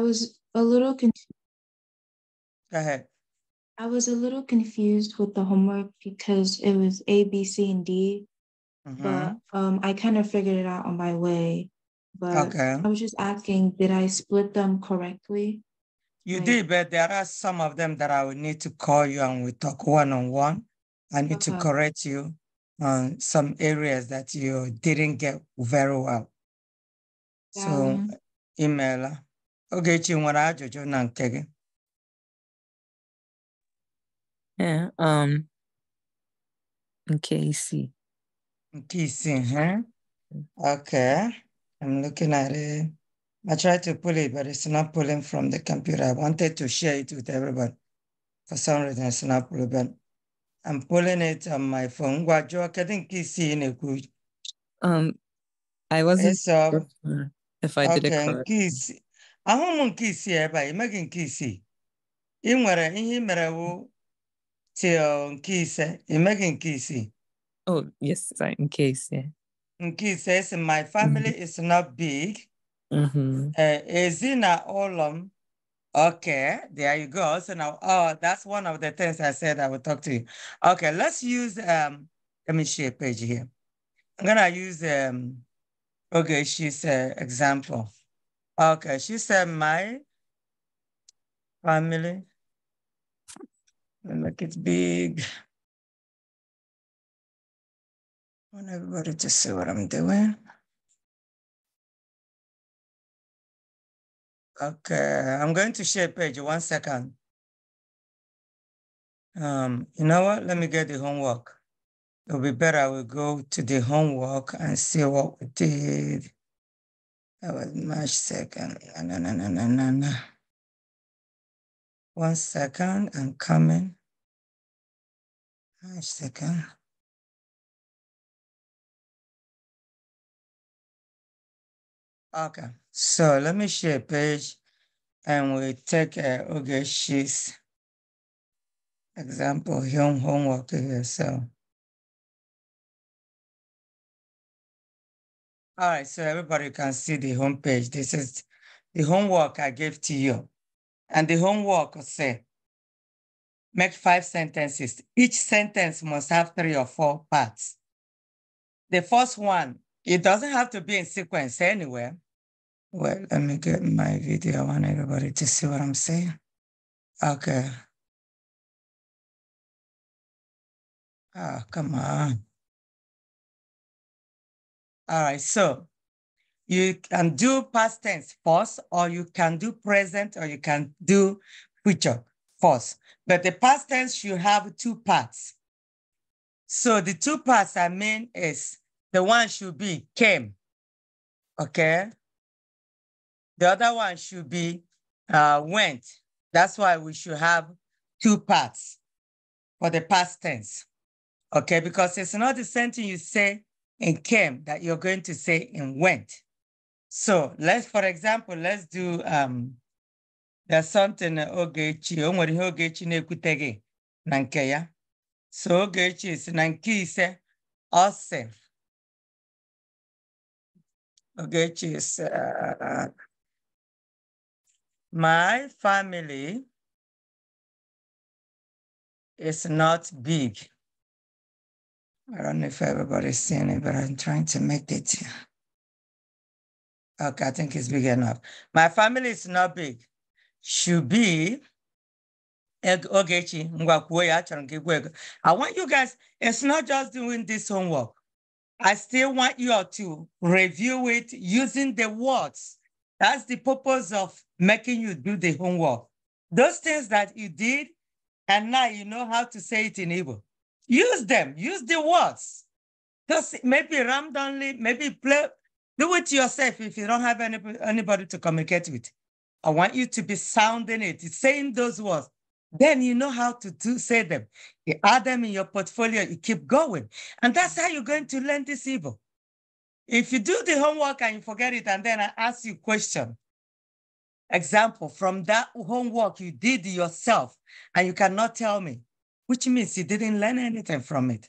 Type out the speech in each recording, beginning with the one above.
I was a little confused. Go ahead. I was a little confused with the homework because it was A, B, C, and D, mm-hmm. but um, I kind of figured it out on my way. But okay. I was just asking, did I split them correctly? You like, did, but there are some of them that I would need to call you and we talk one on one. I need okay. to correct you on some areas that you didn't get very well. Yeah. So, um, email Okay, nwere ajụjụ na nke gị. Ee, um, okay, see. huh? Okay, I'm looking at it. I tried to pull it, but it's not pulling from the computer. I wanted to share it with everybody. For some reason, it's not pulling, but I'm pulling it on my phone. Ngwa I kedu nke isii it ekwu Um, I wasn't it's, um, sure if I okay, did it correctly. I'm nke isii ebe a emeghị nke isii ị nwere ihe ị mere wụ till nke ise emeghị nke isii oh yes sorry, nke ise nke ise esi my family mm -hmm. is not big mm-hmm. eh, ezinụlọ m okay there you go so now oh that's one of the things i said i will talk to you okay let's use um let me share a page here i'm gonna use um okay she's an example Okay, she said my family. And look, it's big. I want everybody to see what I'm doing. Okay, I'm going to share page, one second. Um, you know what, let me get the homework. It'll be better, I will go to the homework and see what we did. That was March 2nd. No, no, no, no, no, no. One second, I'm coming. March 2nd. Okay, so let me share a page and we take uh, Ogeshi's example, home homework here. So. All right, so everybody can see the homepage. This is the homework I gave to you. And the homework say, make five sentences. Each sentence must have three or four parts. The first one, it doesn't have to be in sequence anywhere. Well, let me get my video. I want everybody to see what I'm saying. Okay. Ah, oh, come on. All right, so you can do past tense first, or you can do present, or you can do future first. But the past tense should have two parts. So the two parts I mean is the one should be came, okay? The other one should be uh, went. That's why we should have two parts for the past tense, okay? Because it's not the same thing you say and came that you're going to say and went. So let's, for example, let's do um, there's something Ogechi, o nwere ihe Ogechi na-ekwute gị na nke ya. So Ogechi si na nke ise, ọ sị, Ogechi sị, uh, my family is not big. I don't know if everybody's seeing it, but I'm trying to make it. Okay, I think it's big enough. My family is not big. Should be. I want you guys, it's not just doing this homework. I still want you all to review it using the words. That's the purpose of making you do the homework. Those things that you did, and now you know how to say it in Igbo. Use them, use the words. Just maybe randomly, maybe play, do it yourself if you don't have any, anybody to communicate with. I want you to be sounding it, saying those words. Then you know how to do, say them. You add them in your portfolio, you keep going. And that's how you're going to learn this evil. If you do the homework and you forget it, and then I ask you question, example, from that homework you did yourself, and you cannot tell me, which means he didn't learn anything from it.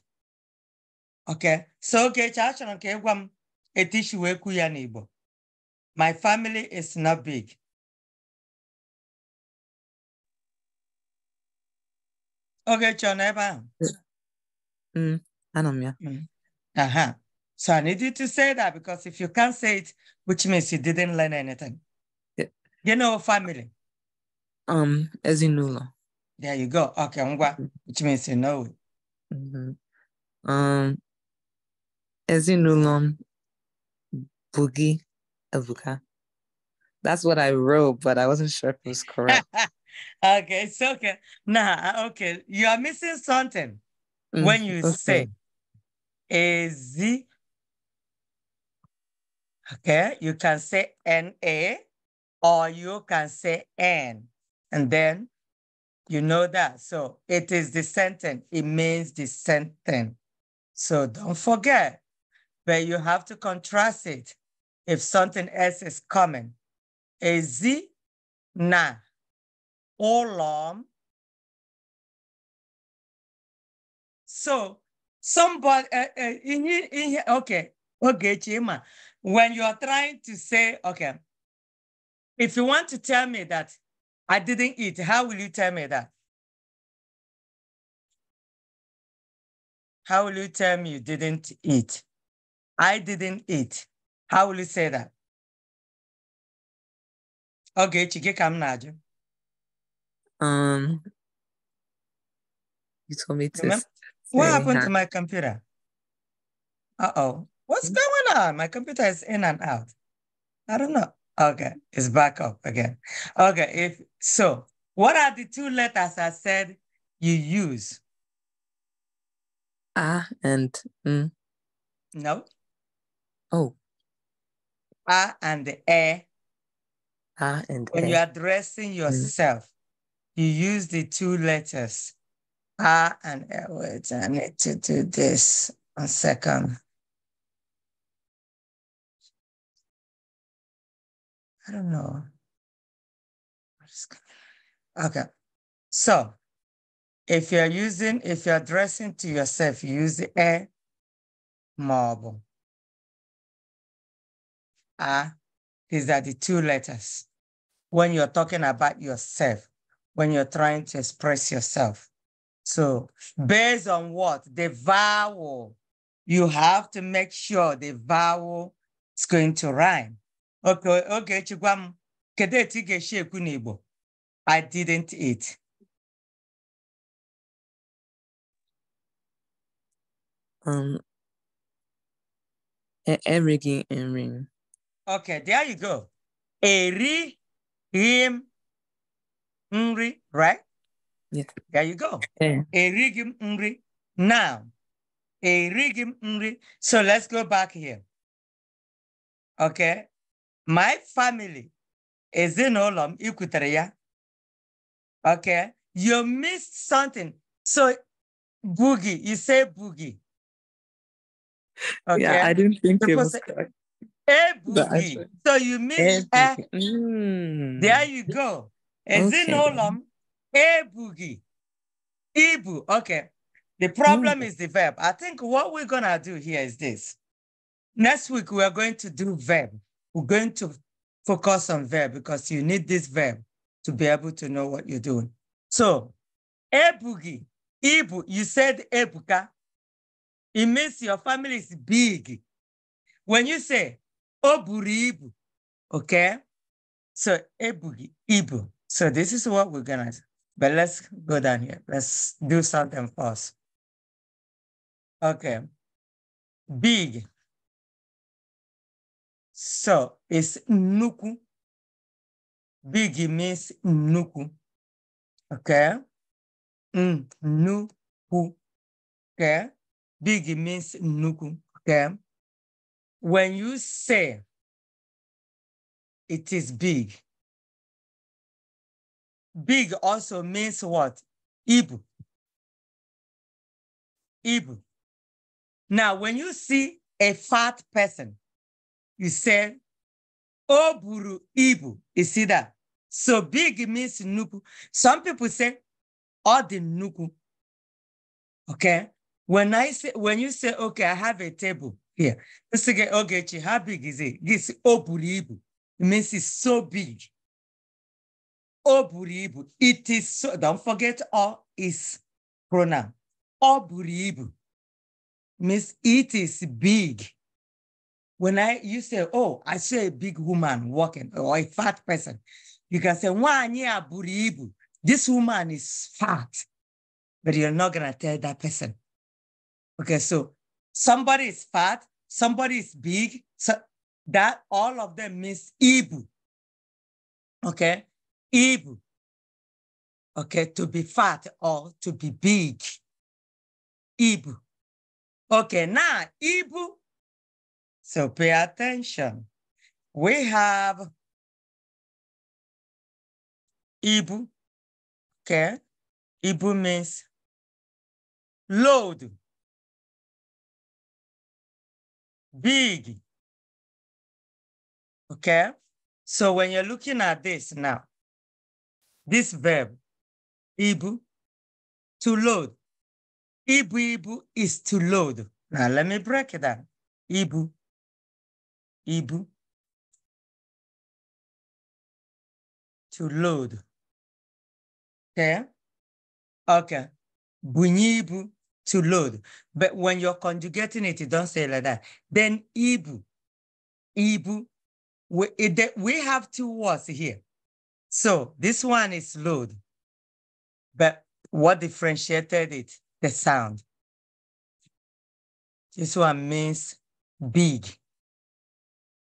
Okay, so okay, chachara nke ịgwa m etishi wee kwu My family is not big. Okay, John, na ebe ahụ. Anọ Aha. So I need you to say that because if you can't say it, which means you didn't learn anything. Yeah. You know family. Um, ezinụlọ. There you go. Okay, ngwa, which means you know it. Mm -hmm. Um, ezinụlọ boogie ebuka. That's what I wrote, but I wasn't sure if it was correct. okay, it's okay. Nah, okay. You are missing something mm, when you okay. say Ezi. Okay, you can say N A or you can say N and then you know that. So it is dissenting. It means dissenting. So don't forget, but you have to contrast it if something else is coming. Ezi na long? So somebody, uh, uh, in, here, okay, okay, Chima, when you are trying to say, okay, if you want to tell me that I didn't eat. How will you tell me that? How will you tell me you didn't eat? I didn't eat. How will you say that? Okay, chike kam najo. Um, you told me to. What happened to my computer? Uh oh, what's hmm? going on? My computer is in and out. I don't know. Okay, it's back up again. Okay, if so, what are the two letters I said you use? Ah and mm. No. Oh. Ah and the eh. Ah and when you're addressing mm. yourself, mm. you use the two letters. Ah and eh. Wait, I need to do this. One second. I don't know. Okay. So if you're using, if you're addressing to yourself, use the A marble. A, ah, these are the two letters. When you're talking about yourself, when you're trying to express yourself. So based on what? The vowel. You have to make sure the vowel is going to rhyme. Ogechi gwa m kedu etu ị ga-esi ekwu n'Igbo I didn't eat um, e erighị nri m okay there you go erighị m nri right yeah. there you go yeah. erighị m nri now erighị m nri so let's go back here okay my family is in ikwutere okay you missed something so boogie you say boogie okay yeah, i didn't think it was a boogie so you missed a, mm. there you go ezinụlọ m a boogie ibu okay the problem mm. is the verb i think what we're gonna do here is this next week we are going to do verb we're going to focus on verb because you need this verb to be able to know what you're doing. So, ebugi, ibu, you said ebuka. It means your family is big. When you say oburi ibu, okay? So, ebugi, ibu. So this is what we're gonna But let's go down here. Let's do something first. Okay. Big. So it's nuku. Big means nuku. Okay? nuku. Okay? Big means nuku. Okay? When you say it is big, big also means what? Ibu. Ibu. Now, when you see a fat person, you say, "oburu oh, ibu. You see that? So big means nuku. Some people say, all oh, the nuku. Okay? When I say, when you say, okay, I have a table here. Let's say, okay, how big is it? This "oburu oh, ibu. It means it's so big. "Oburu ibu. It is so, don't forget all is pronoun. "Oburu ibu means it is big. When I you say, oh, I see a big woman walking or a fat person, you can say, Buribu, this woman is fat, but you're not gonna tell that person. Okay, so somebody is fat, somebody is big, so that all of them means ibu. Okay, ibu. Okay, to be fat or to be big. Ibu. Okay, now ibu so pay attention. We have Ibu. Okay. Ibu means load. Big. Okay. So when you're looking at this now, this verb, Ibu, to load. Ibu, Ibu is to load. Now let me break it down. Ibu Ibu to load. Okay. Okay. Bunyi ibu to load. But when you're conjugating it, you don't say like that. Then ibu. Ibu. We, it, we have two words here. So this one is load. But what differentiated it? The sound. This one means big.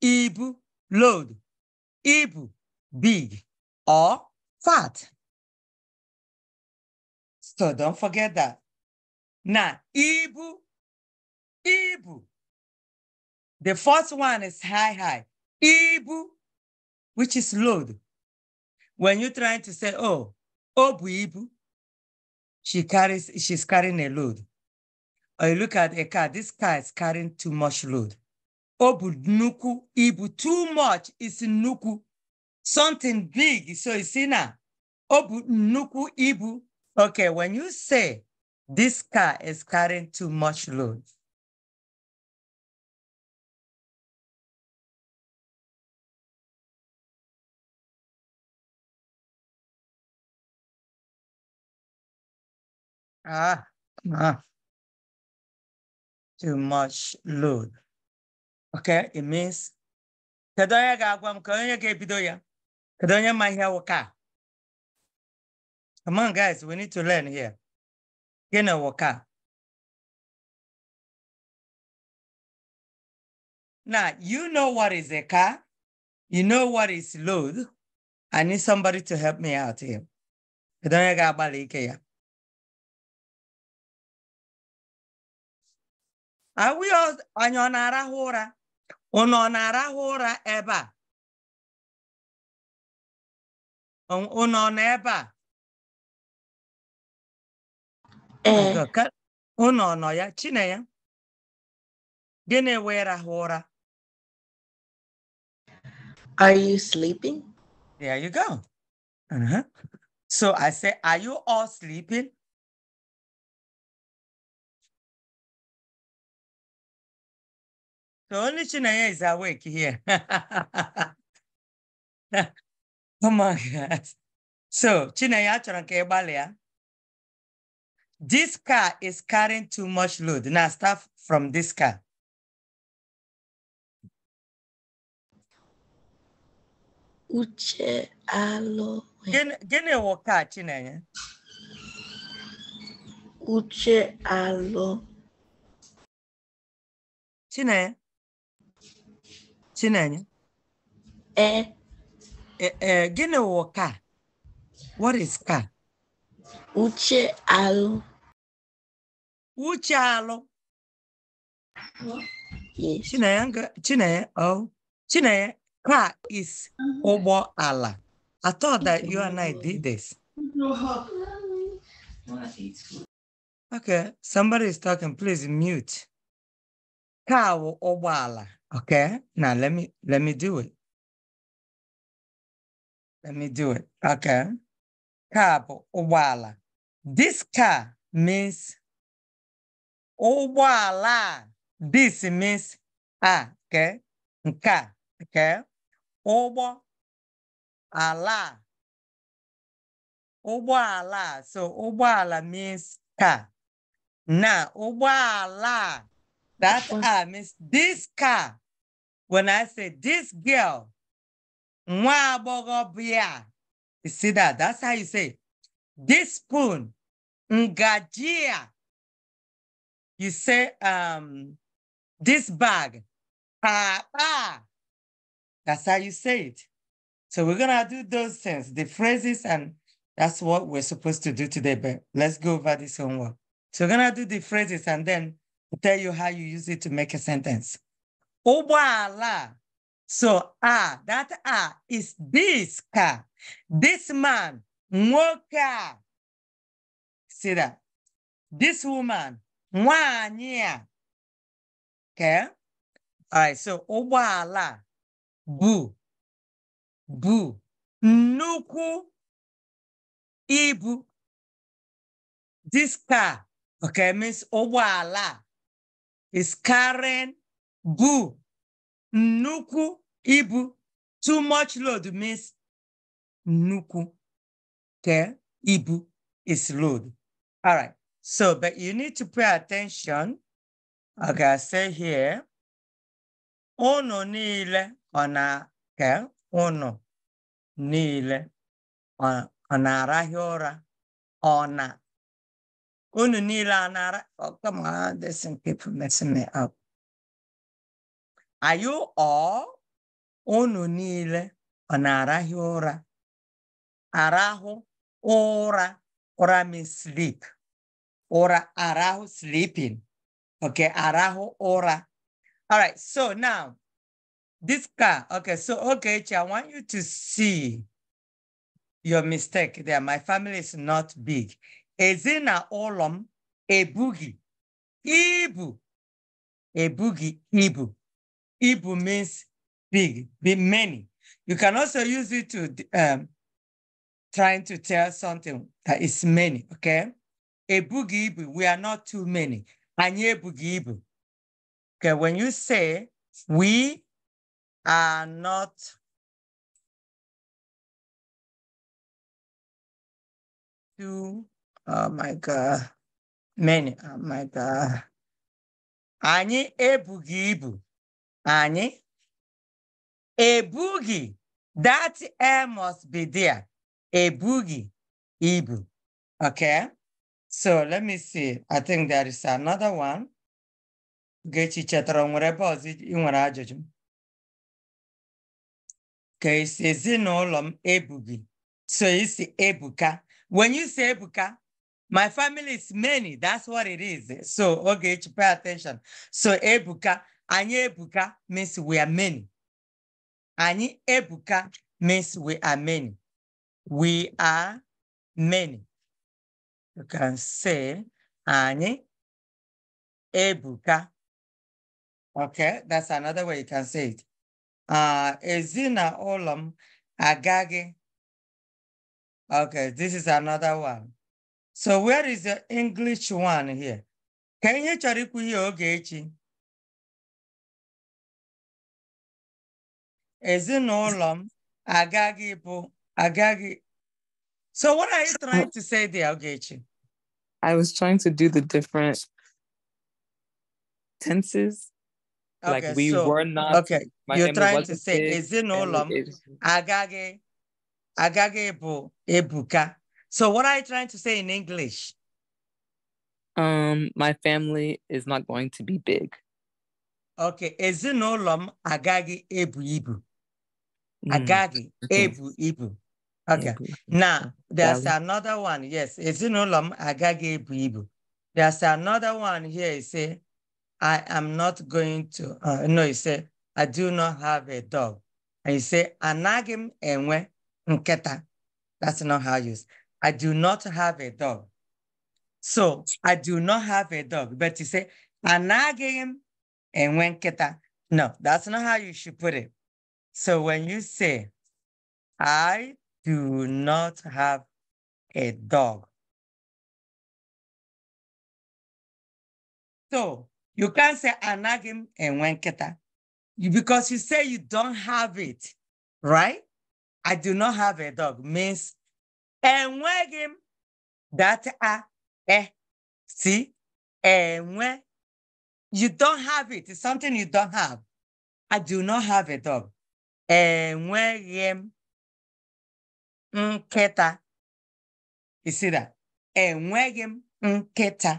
Ib, load. Ib, big or fat. So don't forget that. Now, Ibu, Ibu. The first one is high, high. Ibu, which is load. When you're trying to say, oh, Obu oh, Ibu, she carries, she's carrying a load. Or you look at a car, this car is carrying too much load. Obu nuku ibu. Too much is nuku. Something big. So it's in a obu nuku ibu. Okay, when you say this car is carrying too much load. Ah, ah, too much load. Okay, it means kedu onye ga-agwa m ka onye ga-ebido ya kedu onye ma ihe wụka come on guys we need to learn here gịnị wụka Na you know what is a car you know what is load i need somebody to help me out here kedu onye ga-agbalị ike ya are we all onye ọ na-arahụ ụra unu ọ na-arahụ ụra ebe a unu ọ nọ ebe a unu ọ nọ ya chine ya gịnị wee rahụ ụra Are you sleeping? There you go. Uh-huh. So I say, are you all sleeping? The only Chinaya is awake here. oh my God. So, Chinaya Chorankebalia. This car is carrying too much load. Now, start from this car. Uche alo. Gene wo car, Chinaya? Uche alo. Chinaya? Chinanya? ee ee gịnị wụ ka? what is ka? uche alụ uche alụ Chinenye Chinanya oh Chinanya car is ụgbọ ala I thought that you and I did this okay somebody is talking please mute Ka wụ ụgbọ ala Okay, now let me let me do it. Let me do it. Okay. Kabo Owala. This car means Owala. This means ah, okay. Nka, okay. Obo ala. Obo ala. So obo ala means car. Now, ala. That ah means this car. when I say this girl, you see that? That's how you say this spoon, ngajia. You say um, this bag, papa. That's how you say it. So we're gonna do those things, the phrases, and that's what we're supposed to do today. But let's go over this homework. So we're gonna do the phrases and then tell you how you use it to make a sentence ụgbọala so a ah, that a ah is this car this man Moka. see that this woman mwania. okay all right so obala bụ bụ nuku ibu this car okay means obala is carrying bu nnukwu ibu too much load means nnukwu ke ibu is load all right so but you need to pay attention I ga say here unu niile ọ na okay unu niile ọ na-arahị ụra ọ na unu niile ọ na-ara oh come on this people me up Are you all? Unu niile ọ na-arahụ ụra? Arahụ ụra ụra means sleep. Ụra arahụ sleeping. ok arahụ ụra. All right, so now this car. Okay, so okay, I want you to see your mistake there. My family is not big. ụlọ m ebughi ibu ebughi ibu. Ibu means big, be many. You can also use it to um, trying to tell something that is many, okay? Ebugi Ibu, we are not too many. Anye Ebugi Ibu. Okay, when you say we are not too, oh my God, many, oh my God. Anyị ebughị ibu. anyị ebughị that air must be there ebughị ibu okay so let me see i think there is another one gechi chetara nwere ebe ọzọ ị nwere ajụjụ ka isi e ezinụlọ m ebughị so isi ebuka when you say ebuka my family is many that's what it is so ogechi pay attention so ebuka Anyị ebuka means we are many. Anyị ebuka means we are many. We are many. You can say anyị ebuka. Okay, that's another way you can say it. Uh, ezinụlọ m agaghị. Okay, this is another one. So where is the English one here? Ka ihe chọrọ ikwu ihe oge echi? ezinụlọ m agaghị bụ agaghị so what are you trying to say there Ogechi? I was trying to do the different tenses okay, like we so, were not okay you're trying to say ezinụlọ m agaghị agaghị bụ ebuka so what are you trying to say in English um my family is not going to be big okay ezinụlọ m agaghị ebu ibu agadi mm. ebu ibu okay now there's another one yes ezinụlọ agagi agaghị ebu ibu there's another one here he say i am not going to uh, no he say i do not have a dog and he say anaghị enwe nkịta that's not how you say i do not have a dog so i do not have a dog but he say anaghị enwe nkịta no that's not how you should put it so when you say, I do not have a dog. So you can't say anagim and wenketa because you say you don't have it, right? I do not have a dog means enwegim that a eh see enwe you don't have it. It's something you don't have. I do not have a dog. enweghị m nkịta isira enweghị m nkịta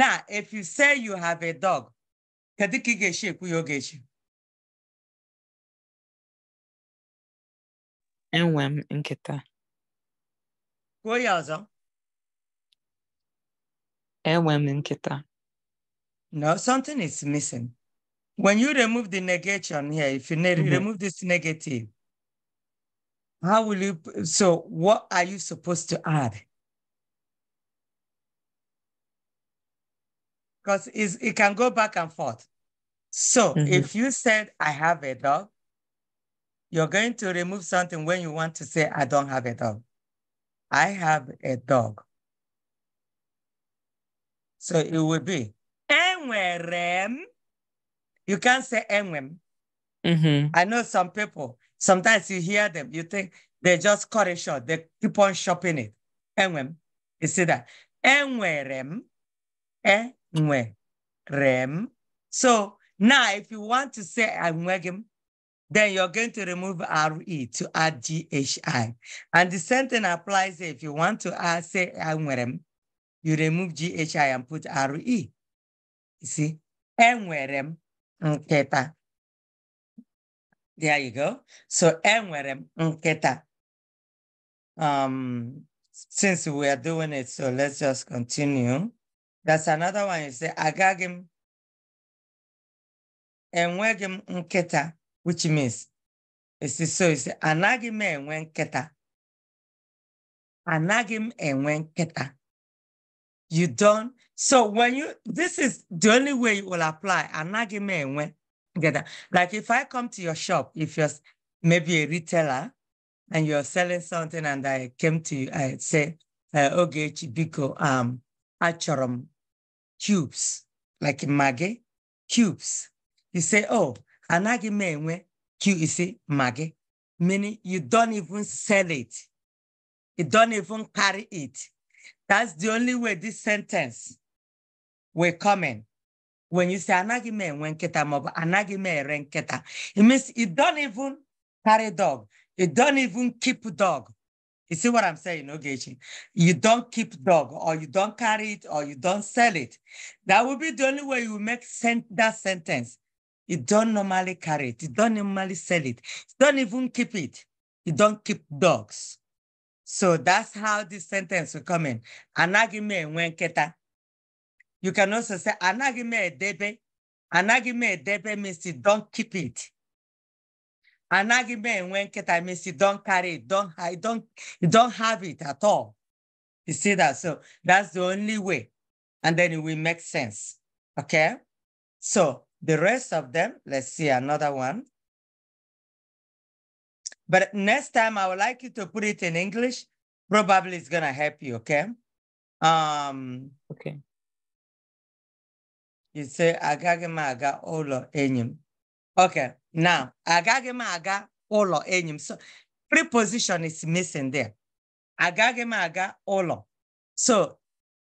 now if you say you have a dog kedu ka ị ga-esi ekwu ya oge echi enwe m nkịta kwuo ya ọzọ enwe m nkịta no something is missing When you remove the negation here, if you ne mm -hmm. remove this negative, how will you, so what are you supposed to add? Because it can go back and forth. So mm -hmm. if you said, I have a dog, you're going to remove something when you want to say, I don't have a dog. I have a dog. So it will be, enwerem you can't say MM. hmm I know some people, sometimes you hear them, you think they just cut it short. They keep on shopping it. MM. You see that? Enwerem. Enwerem. So now if you want to say Enwegem, then you're going to remove RE to add GHI. And the same thing applies if you want to say Enwerem, you remove GHI and put RE. You see? Enwerem nkịta. There you go. So enwere m Um, since we are doing it, so let's just continue. That's another one. You say agagim m enweghị which means it's so you say anagim enwenketa, anagim enwenketa. You don't so when you, this is the only way you will apply. argument when together. Like if I come to your shop, if you're maybe a retailer and you're selling something and I came to you, I say, uh, okay, Chibiko, um, achorum cubes, like mage cubes. You say, oh, anagime when you mage, meaning you don't even sell it. You don't even carry it. That's the only way this sentence we're coming. When you say anaghị m enwe nkịta it means you don't even carry dog. You don't even keep dog. You see what I'm saying, Ogechi? You don't keep dog, or you don't carry it, or you don't sell it. That will be the only way you make sent that sentence. You don't normally carry it. You don't normally sell it. You don't even keep it. You don't keep dogs. So that's how this sentence will come in. Anagime nwenketa. You can also say anagime edebe. Anagime edebe means don't keep it. Anagime enwenketa means you don't carry it, don't hide, don't, you don't have it at all. You see that? So that's the only way. And then it will make sense. Okay? So the rest of them, let's see another one. But next time I would like you to put it in English. Probably it's gonna help you, okay? Um okay you say, agaghị m aga ụlọ enyi Okay, now, agaghị m aga ụlọ enyi So, preposition is missing there. Agaghị m aga ụlọ. So,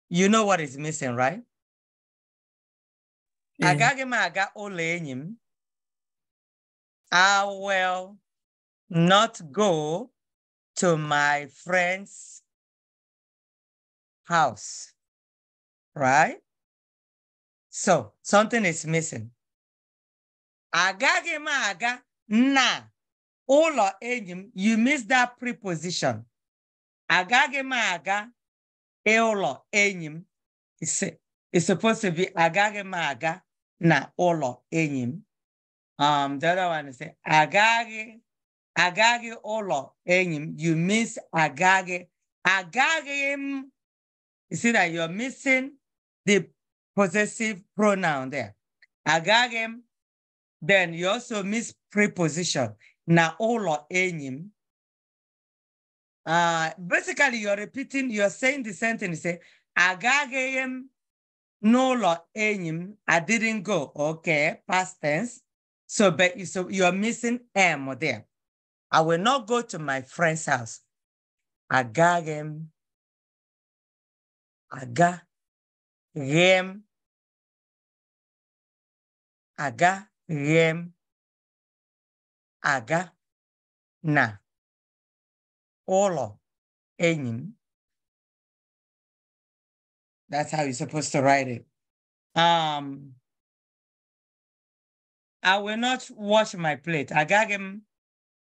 you know what is missing, right? Yeah. Agaghị aga ụlọ enyi I will not go to my friend's house, right? So something is missing. Agaghị na ụlọ enyi you miss that preposition. Agaghị m aga ụlọ It's supposed to be agaghị na ụlọ enyi Um, the other one is agaghị agaghị ụlọ enyi You miss agaghị agaghị You see that you're missing the possessive pronoun there. Agagem, then you also miss preposition. Na olo enim. Uh, basically, you're repeating, you're saying the sentence, say, eh? Agagem nolo enim. I didn't go. Okay, past tense. So, but you, so you're missing M there. I will not go to my friend's house. Agagem. Aga aga, rem, aga, na. Olo, enim. That's how you're supposed to write it. Um, I will not wash my plate. Agagem.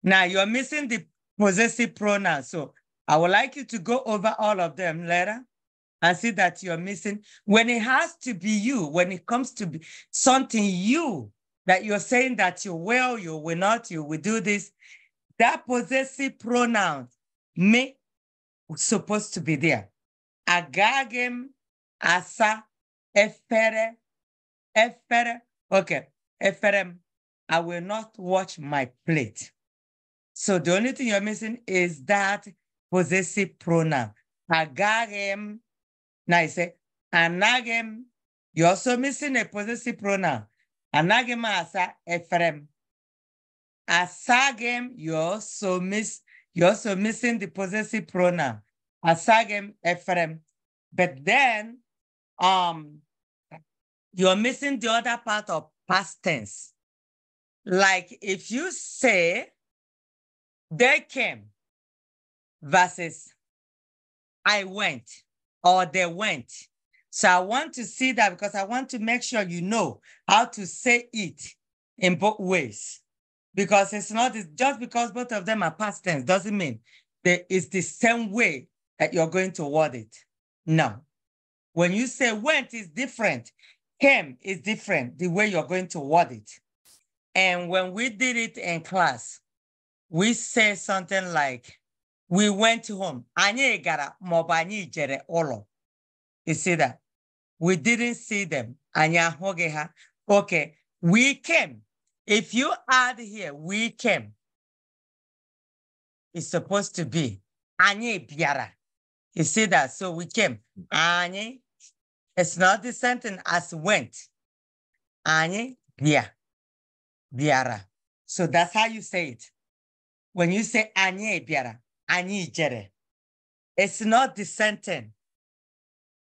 Now you're missing the possessive pronoun. So I would like you to go over all of them later and see that you're missing. When it has to be you, when it comes to be something you that you're saying that you will, you will not, you will do this, that possessive pronoun, me, was supposed to be there. Agagem, asa, efere, efere. Okay, eferem, I will not watch my plate. So the only thing you're missing is that possessive pronoun. Agarem now he say Anagem, you're also missing a possessive pronoun. Anagem asa Ephraim. Asagem, you also miss, you also missing the possessive pronoun. Asagem Ephraim. But then um you're missing the other part of past tense. Like if you say they came versus I went or they went. So I want to see that because I want to make sure you know how to say it in both ways. Because it's not it's just because both of them are past tense doesn't mean that it's the same way that you're going to word it. No. When you say went is different, came is different, the way you're going to word it. And when we did it in class, we say something like, we went home anyị gara maọbụ jere olo. you see that we didn't see them Anya ahụghị ha okay we came if you add here we came it's supposed to be anyị bịara you see that so we came anyị it's not the sentence as went anyị bịa bịara so that's how you say it when you say anye bịara anyị jere it's not the sentence. thing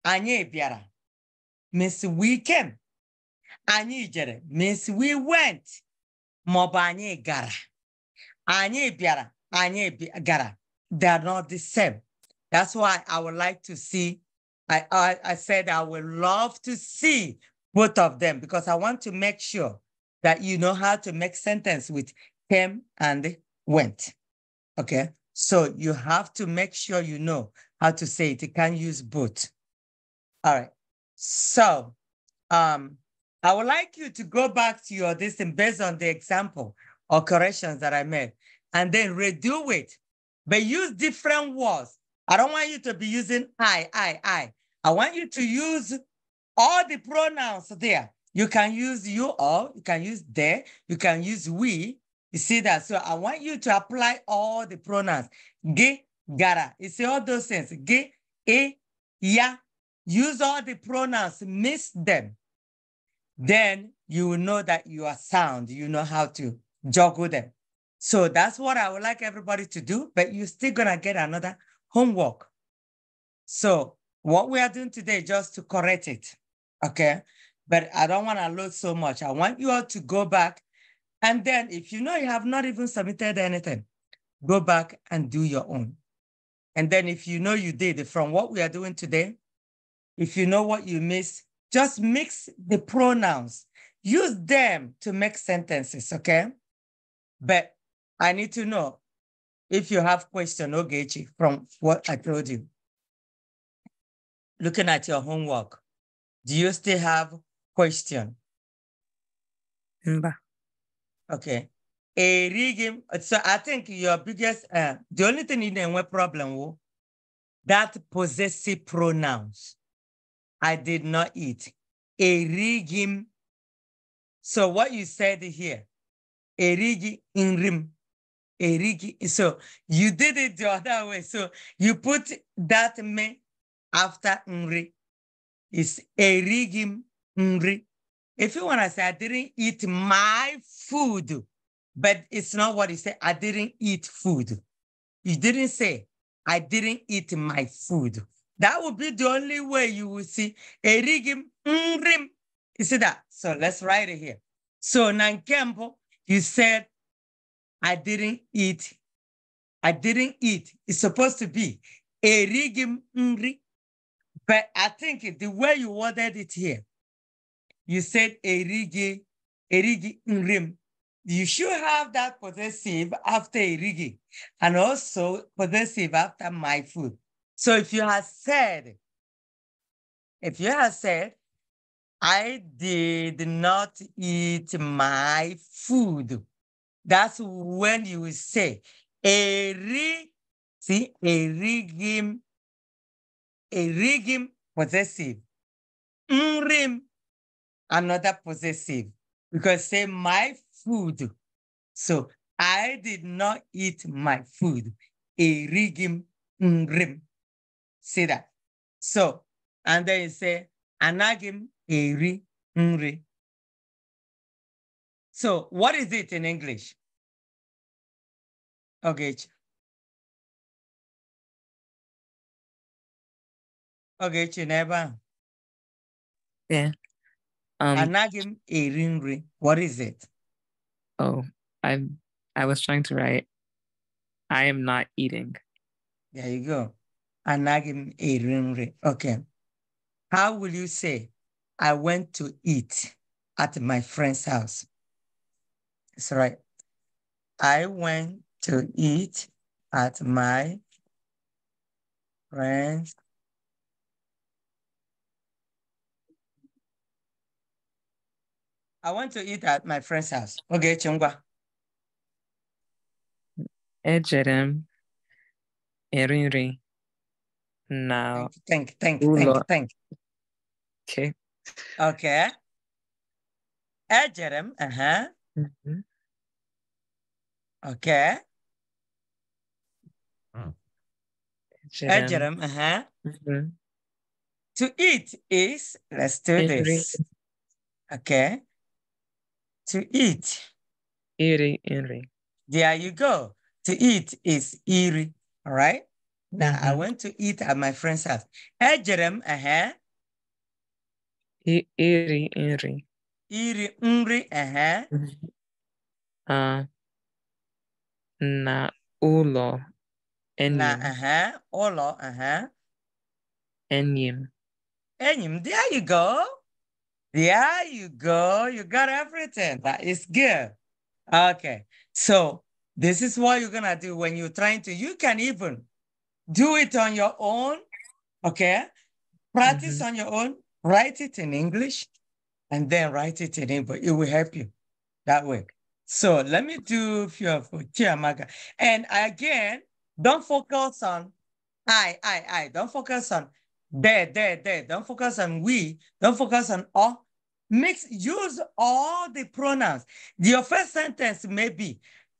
anyị bịara means we came anyị jere means we went ma ọ anyị gara anyị bịara anyị gara they are not the same that's why i would like to see I, I, I said i would love to see both of them because i want to make sure that you know how to make sentence with came and went okay so you have to make sure you know how to say it. You can use both. All right. So um, I would like you to go back to your this based on the example or corrections that I made and then redo it, but use different words. I don't want you to be using I, I, I. I want you to use all the pronouns there. You can use you all, you can use they, you can use we, you see that? So I want you to apply all the pronouns. Ge, gara. You see all those things. Ge, e, ya. Use all the pronouns. Miss them. Then you will know that you are sound. You know how to juggle them. So that's what I would like everybody to do, but you're still going to get another homework. So what we are doing today just to correct it, okay? But I don't want to load so much. I want you all to go back and then if you know you have not even submitted anything, go back and do your own. And then if you know you did from what we are doing today, if you know what you missed, just mix the pronouns. Use them to make sentences, okay? But I need to know if you have question, Ogechi, from what I told you. Looking at your homework, do you still have question? Mba. Okay. A So I think your biggest, uh, the only thing in the problem was that possessive pronouns. I did not eat. A So what you said here, Erigi rigging Erigi. So you did it the other way. So you put that me after nri. It's a rigging nri. If you want to say, I didn't eat my food, but it's not what he said. I didn't eat food. You didn't say, I didn't eat my food. That would be the only way you will see rigim mrim. You see that? So let's write it here. So Nankembo, you said, I didn't eat. I didn't eat. It's supposed to be rigim mri. Mm, but I think the way you worded it here, you said rigi erigi You should have that possessive after erigi and also possessive after my food. So if you have said, if you have said, I did not eat my food, that's when you will say, eri, see, erigim, erigim possessive. unrim, another possessive because say my food. So I did not eat my food. Erigim ngrim. See that? So, and then you say, anagim eri ngri. So what is it in English? Okay. Okay, Chineba. Yeah. Um, anaghị m What is it? Oh, I I was trying to write. I am not eating. There you go. Anagim m eri Okay. How will you say, I went to eat at my friend's house? Sorry. right. I went to eat at my friend's I want to eat at my friend's house. Okay, Chungwa. Ejere erinri. Now. Thank, you, thank, you, thank you. Okay. Okay. Ejere uh-huh. Mm -hmm. Okay. Ejere uh-huh. Mm -hmm. To eat is, let's do this. Okay to eat. Iri, iri. There you go. To eat is iri. All right. Now mm -hmm. I mm-hmm. went to eat at my friend's house. Ejerem, uh-huh. Iri, iri. Iri, nri, uh-huh. Mm-hmm. Uh, na ulo, enim Na, uh-huh. Ulo, uh-huh. Enim. Enyim, there you go. Yeah, you go. You got everything. That is good. Okay. So this is what you're going to do when you're trying to. You can even do it on your own. Okay. Practice mm -hmm. on your own. Write it in English and then write it in English. It will help you that way. So let me do a few. of Tiamaga. And again, don't focus on I, I, I. Don't focus on there, there, there. Don't focus on we. Don't focus on all. Mix, use all the pronouns. Your first sentence may be,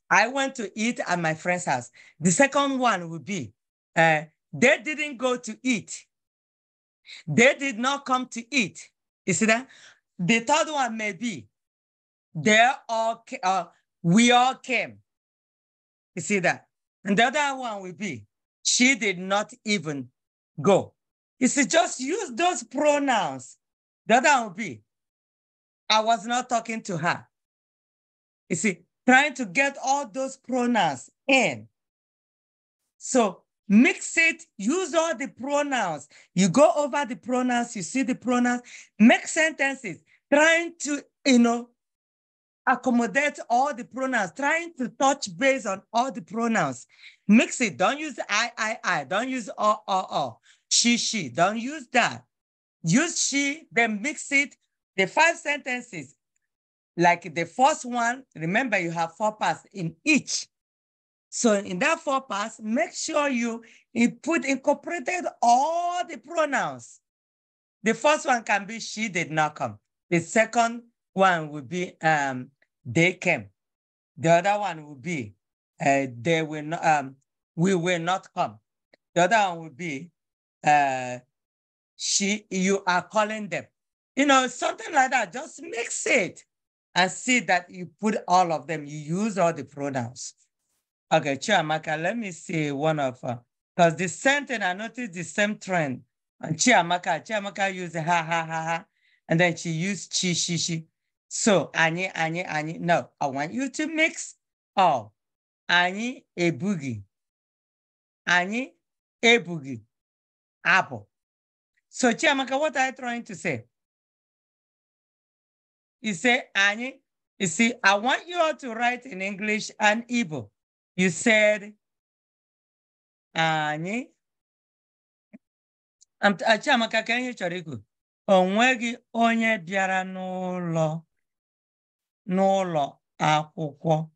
I went to eat at my friend's house. The second one would be, uh, they didn't go to eat. They did not come to eat. You see that? The third one may be, they all, uh, we all came. You see that? And the other one will be, she did not even go. You see, just use those pronouns. The other one will be, I was not talking to her. You see, trying to get all those pronouns in. So mix it, use all the pronouns. You go over the pronouns, you see the pronouns, make sentences, trying to, you know, accommodate all the pronouns, trying to touch base on all the pronouns. Mix it. Don't use I, I, I. Don't use o, o, o. She, she. Don't use that. Use she, then mix it the five sentences, like the first one, remember you have four parts in each. So in that four parts, make sure you put incorporated all the pronouns. The first one can be she did not come. The second one will be um, they came. The other one will be uh, they will not, um, we will not come. The other one will be uh, she, you are calling them you know, something like that. Just mix it and see that you put all of them, you use all the pronouns. Okay, Chiamaka, let me see one of her. Uh, because the same thing, I noticed the same trend. And Chiamaka, Chiamaka used ha ha ha ha. And then she used chi, she, she. So, any, any, any. No, I want you to mix all. Any, a boogie. Any, a boogie. Apple. So, Chiamaka, what are you trying to say? You say, Annie, you see, I want you all to write in English and Igbo. You said, Annie. i am gonna ikwu? O nweghị onye bịara n'ụlọ n'ụlọ akwụkwọ.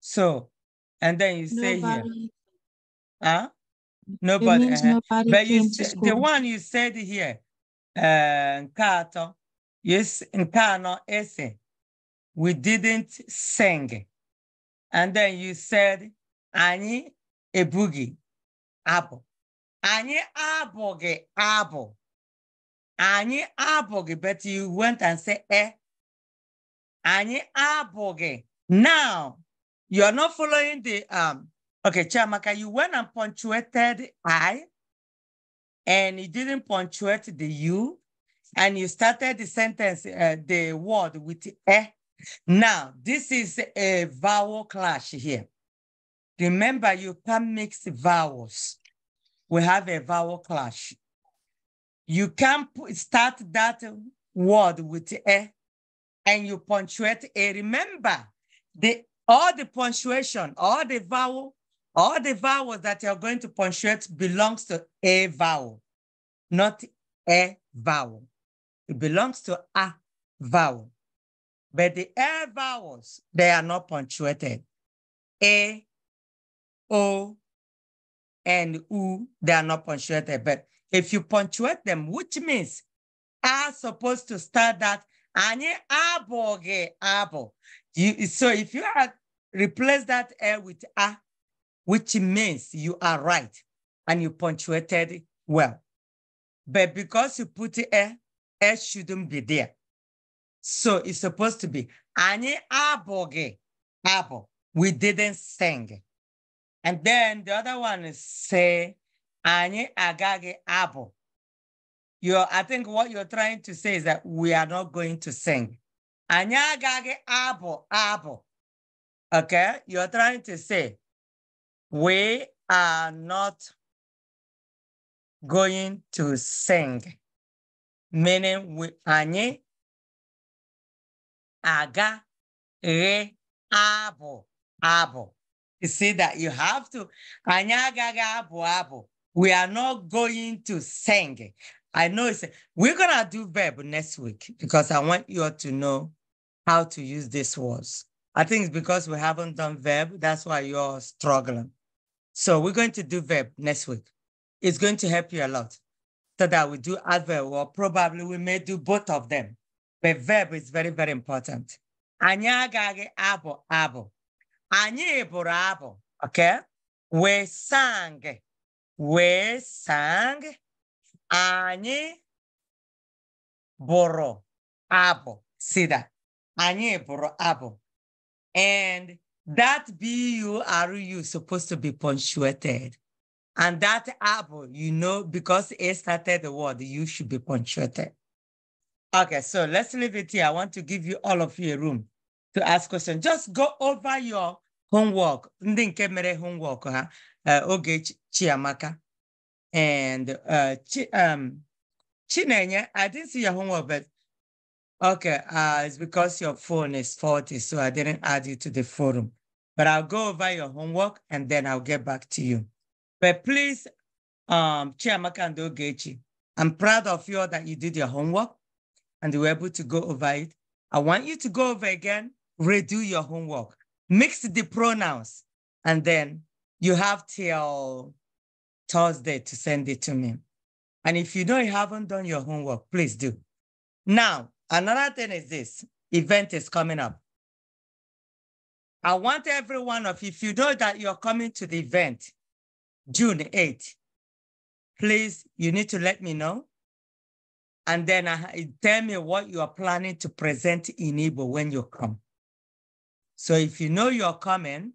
So, and then you say nobody. here. Huh? Nobody. Uh nobody but you, the one you said here, uh, kato. Yes, in anọ ese, we didn't sing. And then you said, ani ebugi abo, ani aboge abo, ani aboge. but you went and said, eh. ani aboge. Now, you're not following the, um, okay, Chiamaka, you went and punctuated I, and you didn't punctuate the U and you started the sentence, uh, the word with eh. Now, this is a vowel clash here. Remember, you can not mix vowels. We have a vowel clash. You can start that word with eh, and you punctuate a. Remember, the all the punctuation, all the vowel, all the vowels that you're going to punctuate belongs to a vowel, not a vowel. It belongs to a vowel. But the air vowels, they are not punctuated. A, O, and U, they are not punctuated. But if you punctuate them, which means are supposed to start that anye aboge abo. so if you had replace that air with a, which means you are right and you punctuated well. But because you put air, it shouldn't be there. So it's supposed to be Any aboge abo, We didn't sing. And then the other one is say any agage abo. abụ. I think what you're trying to say is that we are not going to sing. Any agage abo abo, Okay? You're trying to say we are not going to sing meaning we Anye aga re Abo Abo. You see that you have to anyị Aga Abo Abo. We are not going to sing. I know it's we're gonna do verb next week because I want you all to know how to use these words. I think it's because we haven't done verb, that's why you're struggling. So we're going to do verb next week. It's going to help you a lot so that we do adverb, or probably we may do both of them. But verb is very, very important. Anyị agaghị abụ abụ. okay? We sang. We sang. Anyị boro abo. See that? Anyị boro abo. And that B-U-R-U is supposed to be punctuated. And that apple, you know, because it started the word, you should be punctuated. Okay, so let's leave it here. I want to give you all of you a room to ask questions. Just go over your homework. Ndị nke mere homework ha, uh, oge Chiamaka. And uh, Chi, um, I didn't see your homework, but okay, uh, it's because your phone is faulty, so I didn't add you to the forum. But I'll go over your homework and then I'll get back to you. But please, um, Chiamaka and Ogechi, I'm proud of you all that you did your homework and you were able to go over it. I want you to go over again, redo your homework, mix the pronouns, and then you have till Thursday to send it to me. And if you know you haven't done your homework, please do. Now, another thing is this event is coming up. I want every one of you, if you know that you're coming to the event, June 8th. Please, you need to let me know. And then uh, tell me what you are planning to present in Igbo when you come. So if you know you're coming,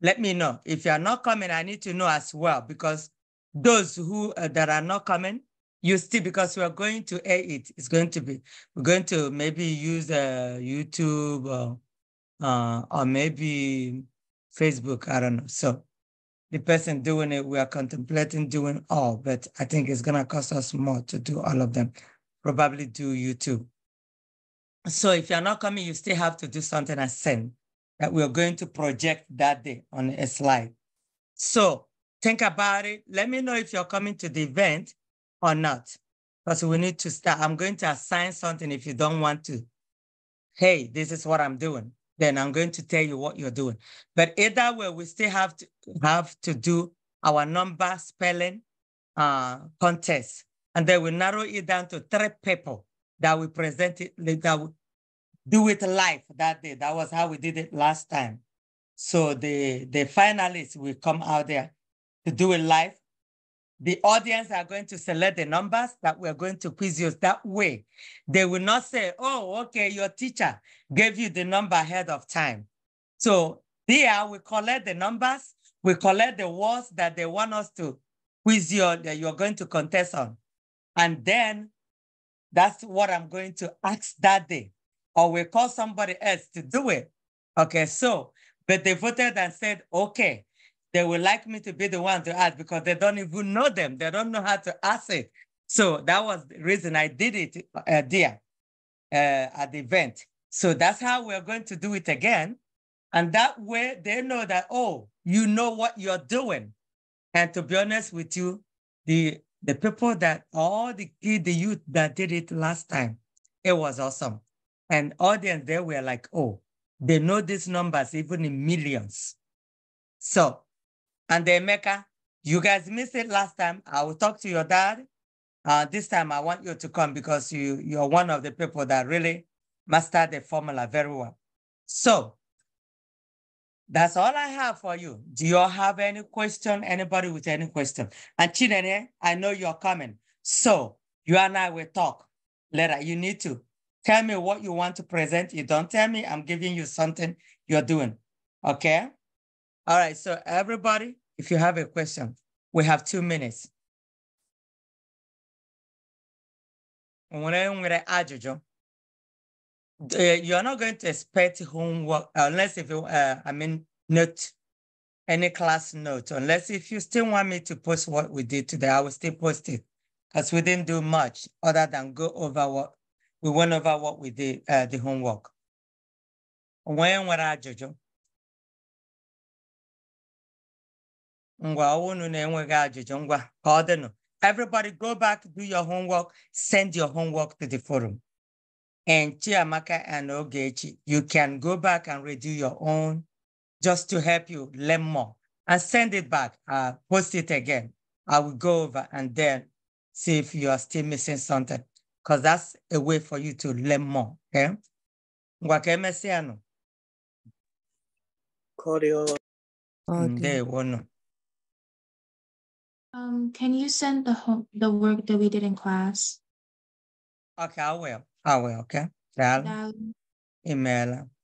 let me know. If you're not coming, I need to know as well because those who uh, that are not coming, you still because we are going to air it. It's going to be we're going to maybe use uh, YouTube or, uh, or maybe Facebook. I don't know. So the person doing it, we are contemplating doing all, but I think it's going to cost us more to do all of them. Probably do YouTube. So if you're not coming, you still have to do something I send that we're going to project that day on a slide. So think about it. Let me know if you're coming to the event or not, because we need to start. I'm going to assign something if you don't want to. Hey, this is what I'm doing then I'm going to tell you what you're doing. But either way, we still have to have to do our number spelling uh, contest, and then we narrow it down to three people that we present it that we do it live that day. That was how we did it last time. So the the finalists will come out there to do it live, the audience are going to select the numbers that we're going to quiz you that way. They will not say, oh, okay, your teacher gave you the number ahead of time. So there we collect the numbers, we collect the words that they want us to quiz you that you're going to contest on. And then that's what I'm going to ask that day. Or we call somebody else to do it. Okay, so, but they voted and said, okay, they would like me to be the one to ask because they don't even know them. They don't know how to ask it. So that was the reason I did it uh, there uh, at the event. So that's how we're going to do it again. And that way they know that, oh, you know what you're doing. And to be honest with you, the, the people that all the kids, the youth that did it last time, it was awesome. And audience, they were like, oh, they know these numbers even in millions. So and then Mecca, you guys missed it last time. I will talk to your dad. Uh, this time I want you to come because you, you're one of the people that really mastered the formula very well. So that's all I have for you. Do you all have any question? Anybody with any question? And Chinene, I know you're coming. So you and I will talk later. You need to tell me what you want to present. You don't tell me, I'm giving you something you're doing. Okay? All right, so everybody, if you have a question, we have two minutes. Uh, You're not going to expect homework uh, unless if you, uh, I mean, note, any class note, unless if you still want me to post what we did today, I will still post it because we didn't do much other than go over what we went over what we did, uh, the homework. When were I, Jojo? everybody go back do your homework send your homework to the forum and chiamaka and ogechi you can go back and redo your own just to help you learn more and send it back uh, post it again i will go over and then see if you are still missing something because that's a way for you to learn more okay eh? ngwa ka emesịa nụ ndewo um, can you send the home, the work that we did in class? Okay, I will. I will, okay? that email